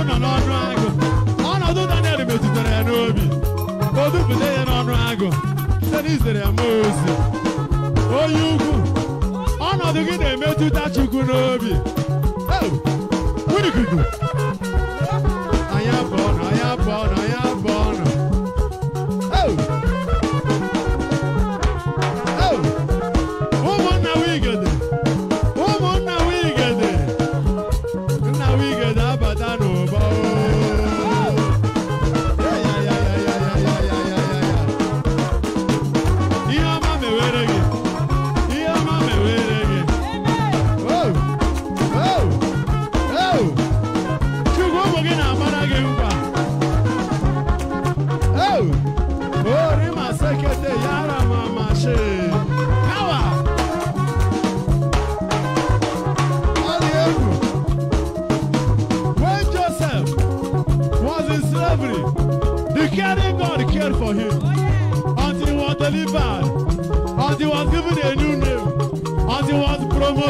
onu nọ n'ọnụ agụ ọnọdụ Daniel metụtara ya n'obi o dupụta ya n'ọnụ agụ site n'izere ya mmụọ ozi onye ukwu ọnọdụ gị na-emetụta Chukwu n'obi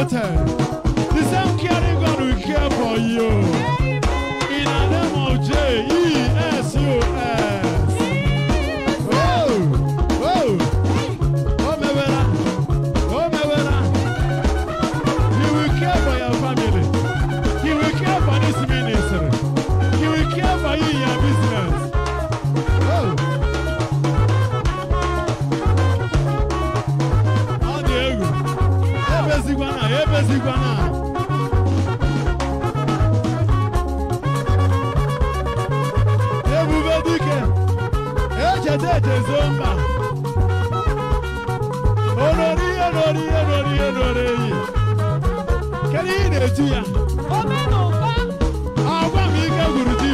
time. orílẹ̀-èdè Zonba olórí olórí olórí olórí yìí kẹ́lí Nàìjíríà. omi nù bá. àwọn mi kẹ́ gùrùjì.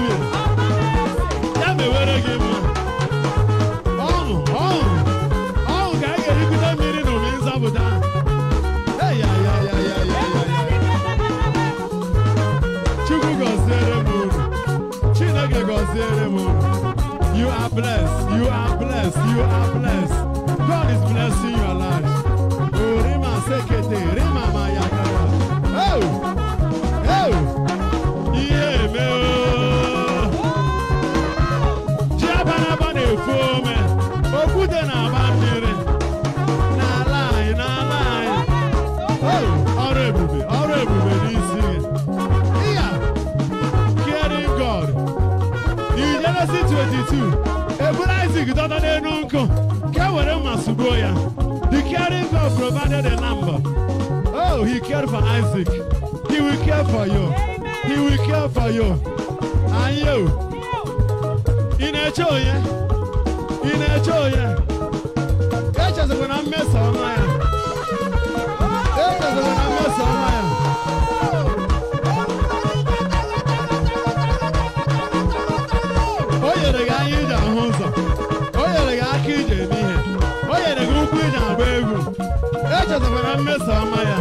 blessed. You are blessed. You are blessed. God is blessing your life. Oh, Rima Sekete, Rima Mayakara. Oh, oh, yeah, me. Jabana bane fome. Okude na bandere. Na lie, na lie. Oh, ọrụ ebube, ọrụ ebube n'isi gị. Yeah, caring God. In Genesis 22. eburu Isaac dọta n'elu nkụ ka e were mma sugbuo ya the caring God provided a number oh he cared for Isaac he will care for you he will care for you and you In a joy. onye ị na-eche onye echezikwa na mmeso ọma ya echezikwa na mmeso ọma ya na-eso ọma ya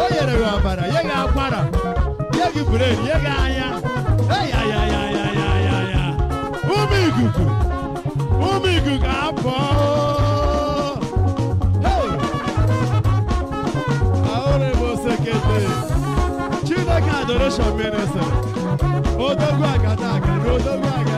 o nyere gị ọbara ya gị akwara ya gị bureri ya gị anya ya ume ikuku ume ikuku apụọ ahụrụ m osekete chineke adoration eh. minister odogwu agada aga na odogwu aga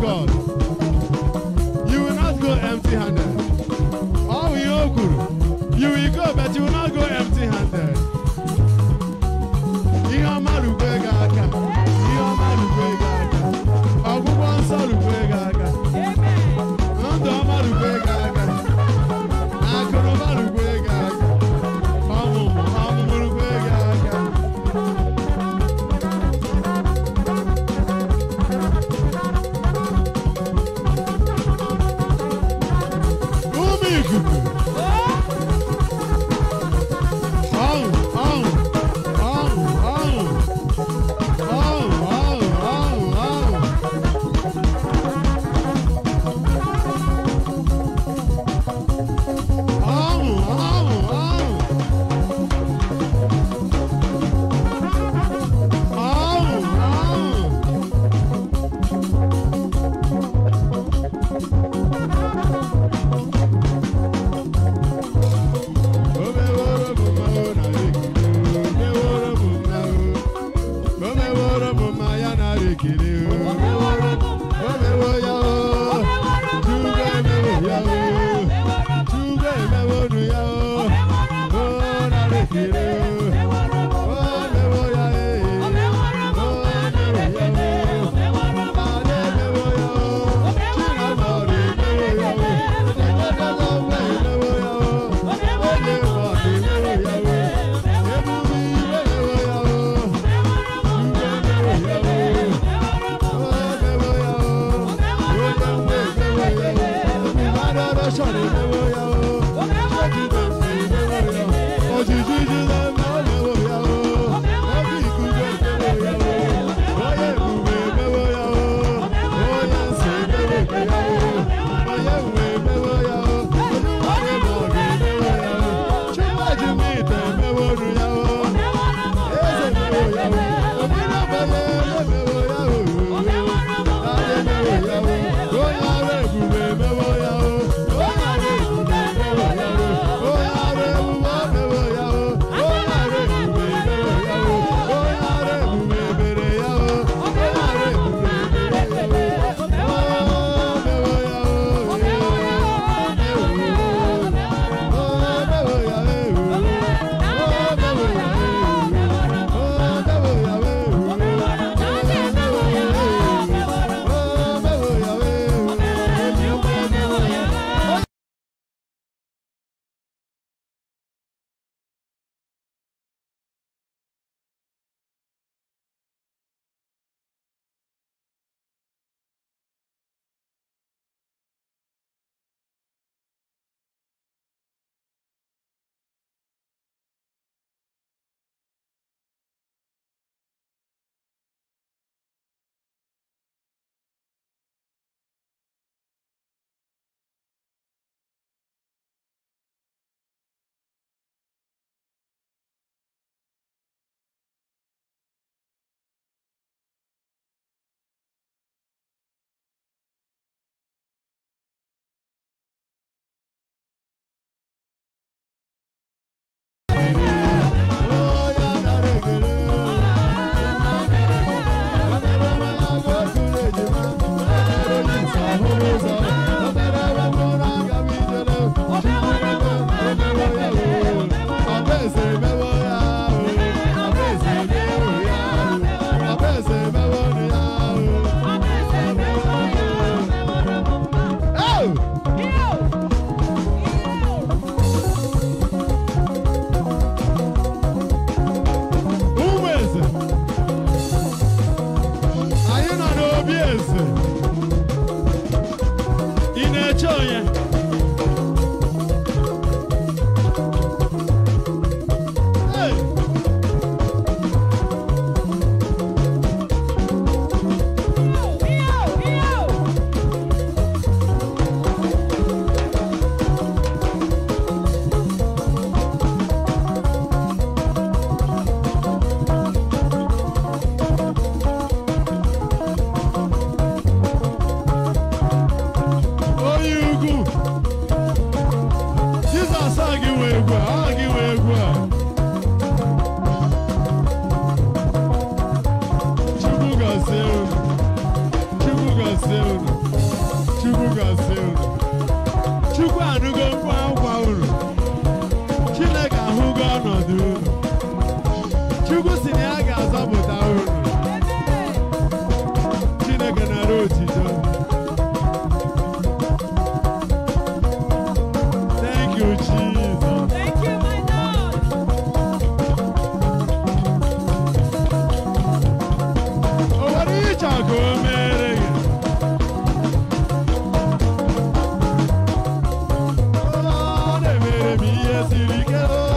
God. You will not go empty handed. do we go.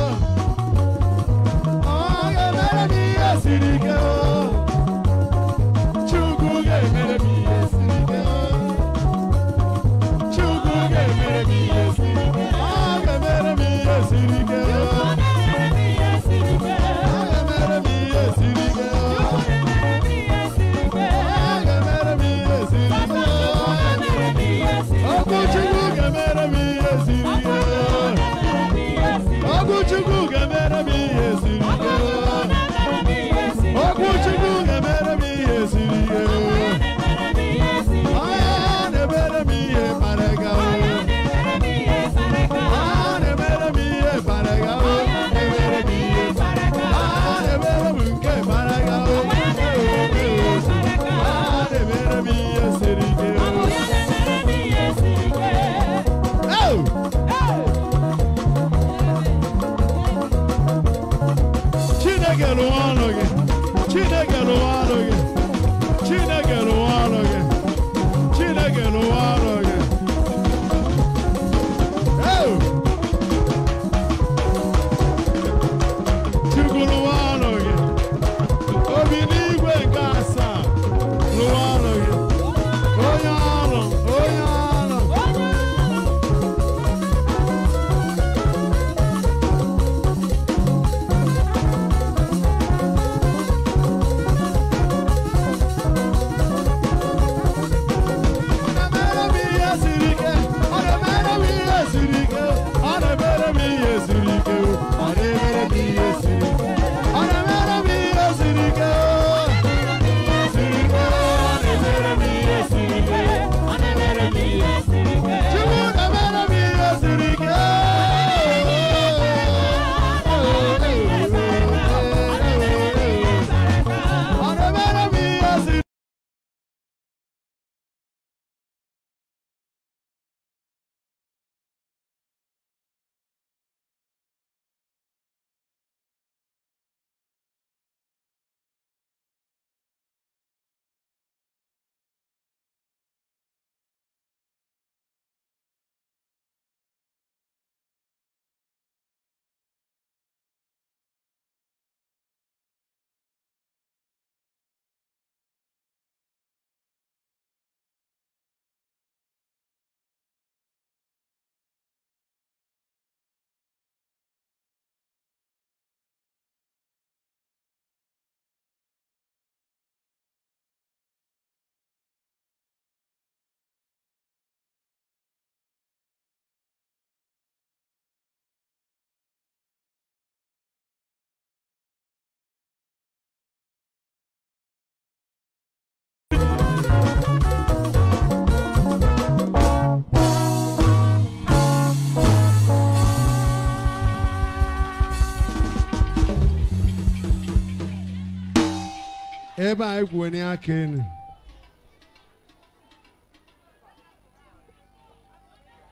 ebe anyị kwenye aka enu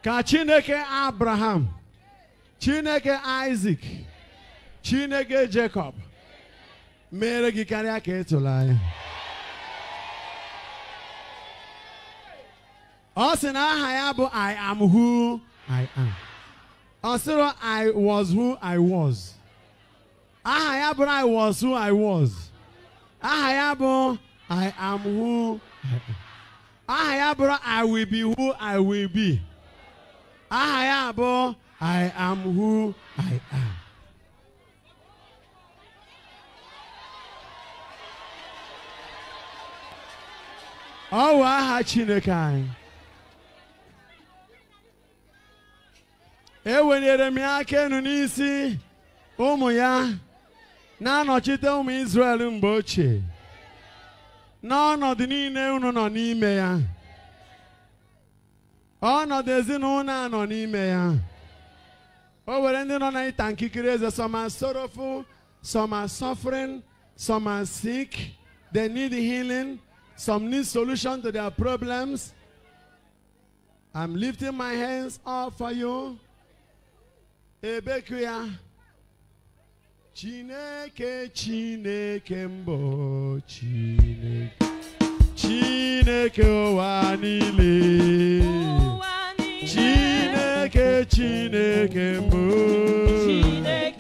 ka chineke abraham chineke Isaac, chineke jacob mere gị karịa ka ịtụrụ anya ọ sị na aha ya bụ i am who i am ọ sịrị i was who i was aha ya bụrụ i was who i was aha ya bụ I am who aha ya bụrụ I will be who I will be aha ya bụ I am who I am ọ wụ aha Chineke anyị ewelere m ya aka enu n'isi ụmụ ya na-anọchite ụmụ Izrel mgbe ochie n'ọnọdụ niile unu nọ n'ime ya ọnọdụ ezinụlọ a nọ n'ime ya o were ndị nọ n'ịta nkikiri eze some are sorrowful some are suffering some are sick they need healing some need solution to their problems I'm lifting my hands up for you ebeku ya Chineke Chineke mbụ Chineke Chineke ụwa niile Chineke Chineke mbụ Chineke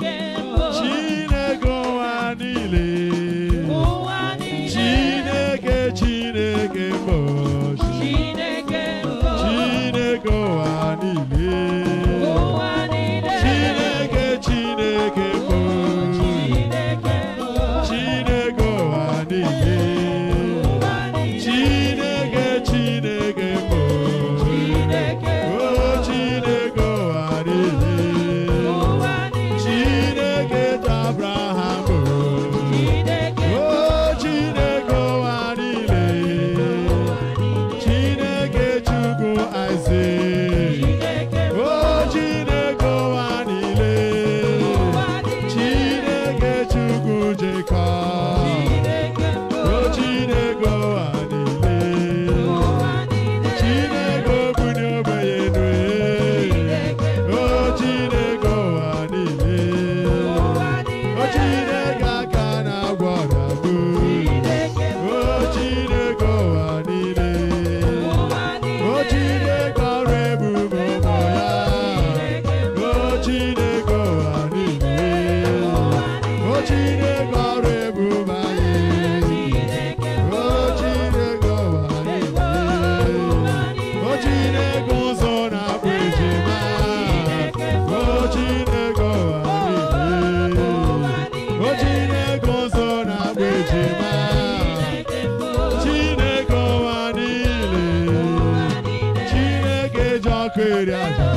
reais.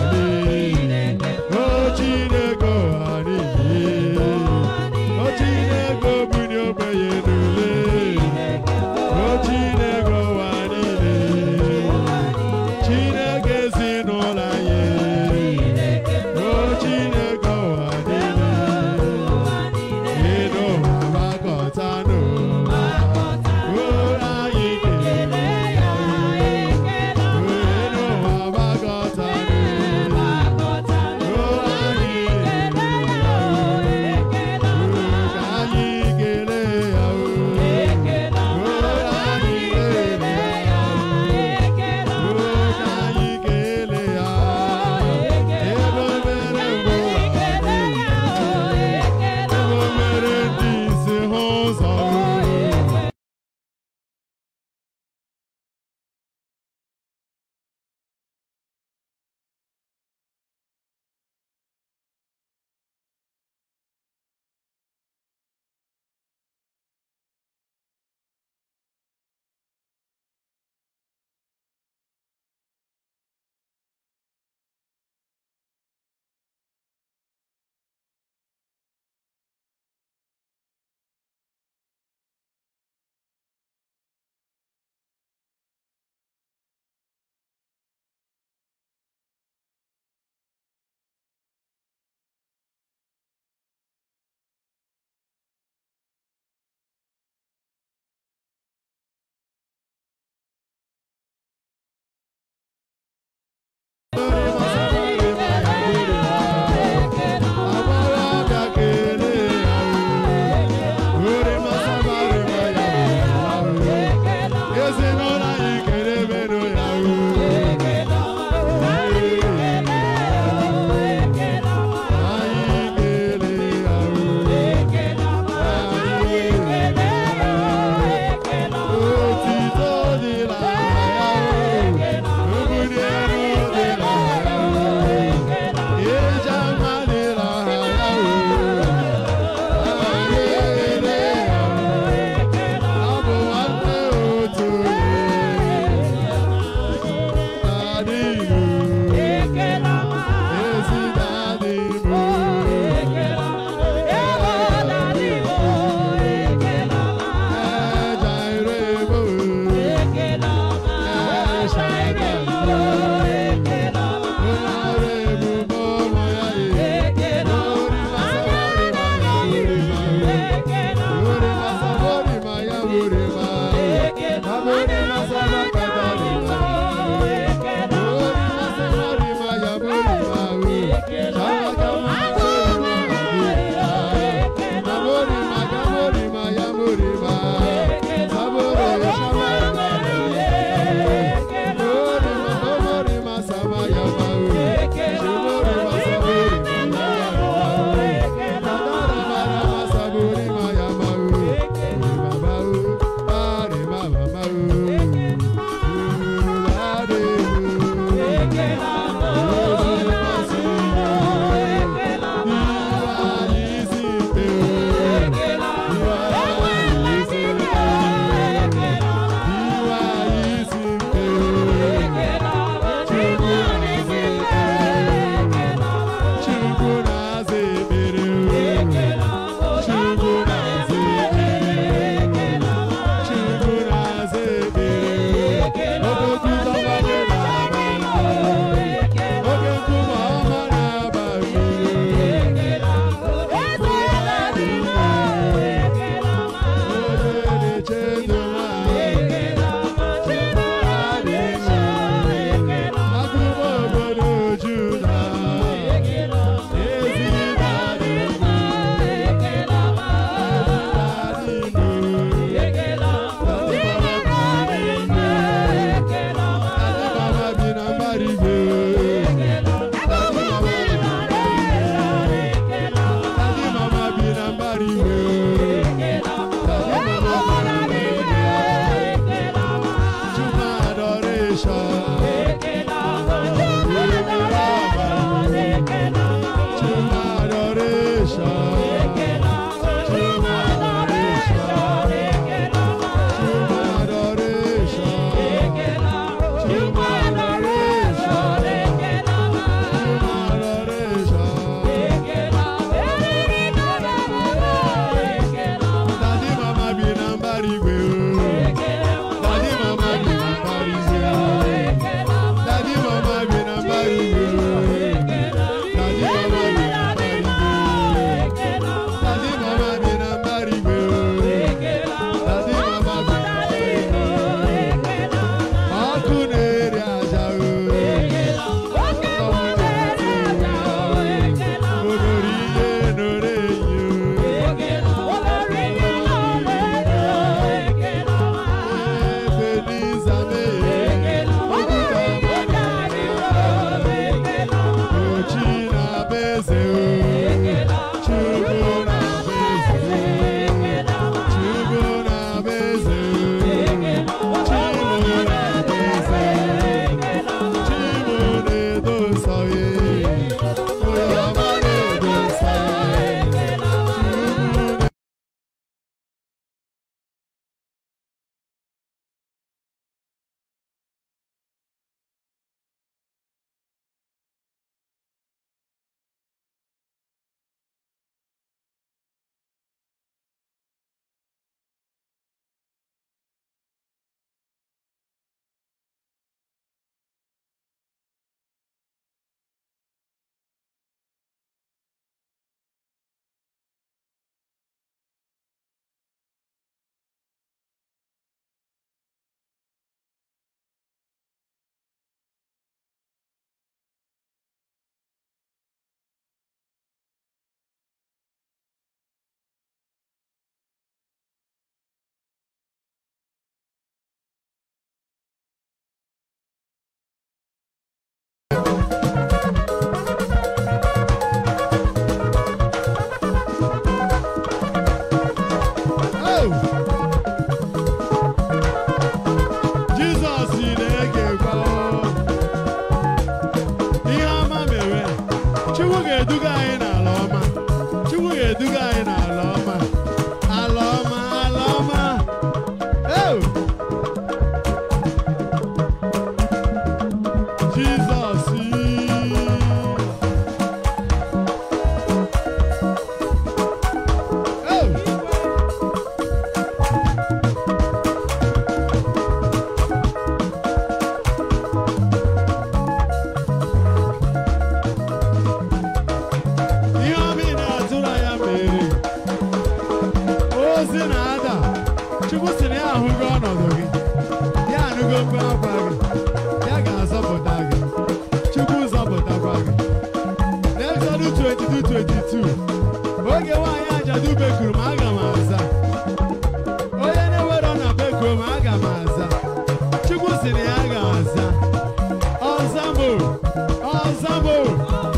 ensemble,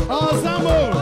ensemble.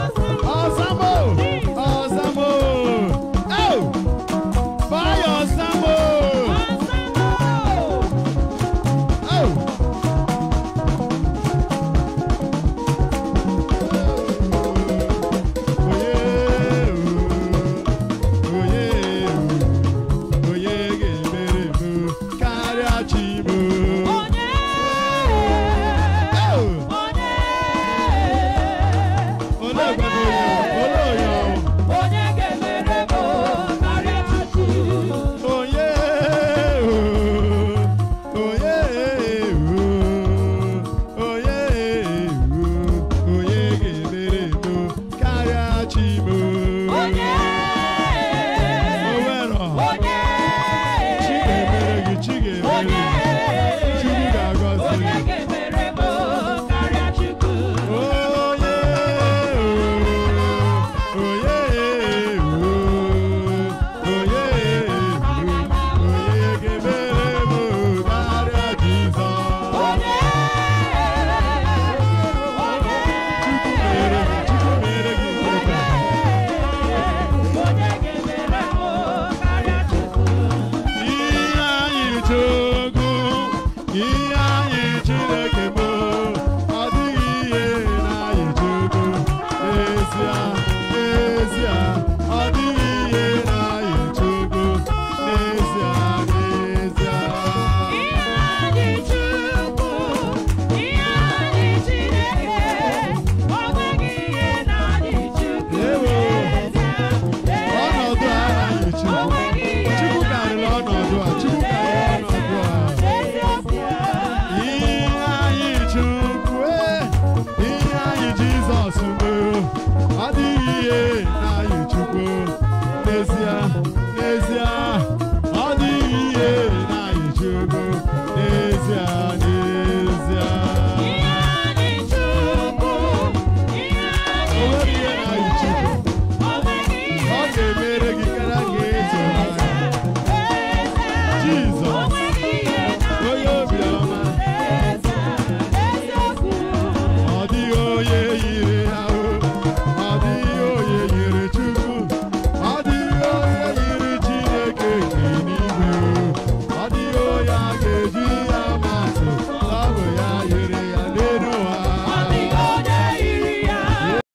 Oh